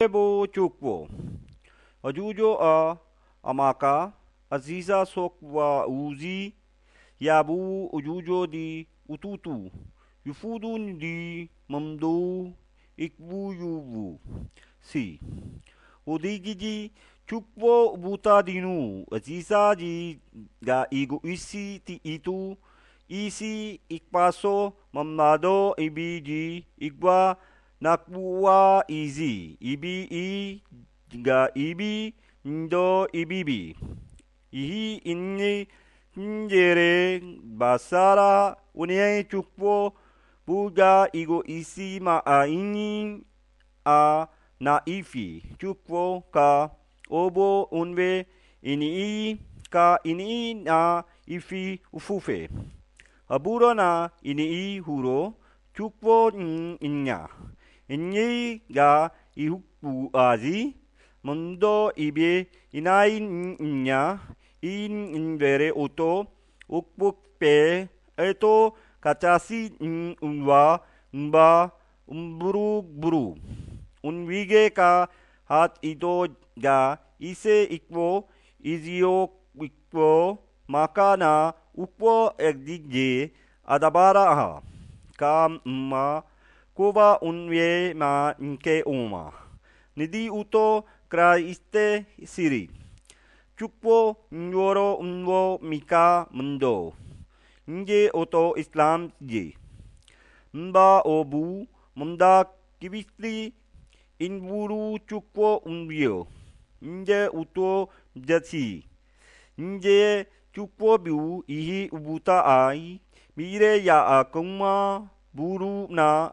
Cebo Çokbo Acuco A Amaka Aziza Sokva Uzi Yabu Ucuco Di Ututu Yufudun Di Mamdu Ikbu Yubu Si Odigici Çukbo Buta Dinu Aziza Isi Ti Itu Isi Ikpaso na nakwa izi ibi i ga ibi ndo ibibi ihi inni njere basara onye chukwu buga igo isi ma anyị a na ifi chukwu ka obo onwe ini ka ini na ifi ufufe ọ bụrụ na ini hụrụ chukwu nya ị ga ị gaa ị hupuazị ndo ibie ị naghị nnya ị nywere otu ụkpụ pere etu ka chasị ndwa mba mburu buru onwike ka ha ịdọ gaa ị se ịkpụ iziyo ịkpụ maka na ụkpụ ezigye adabara ka mba. Cuba un vie ma inke uma. Nidi uto kraiste siri. Chukpo nyoro unwo mika mundo. Nje oto islam ji Mba obu munda kibisli inburu chukpo unbio. Nje uto jati. Nje chukpo biu ihi ubuta ai. Mire ya akuma buru na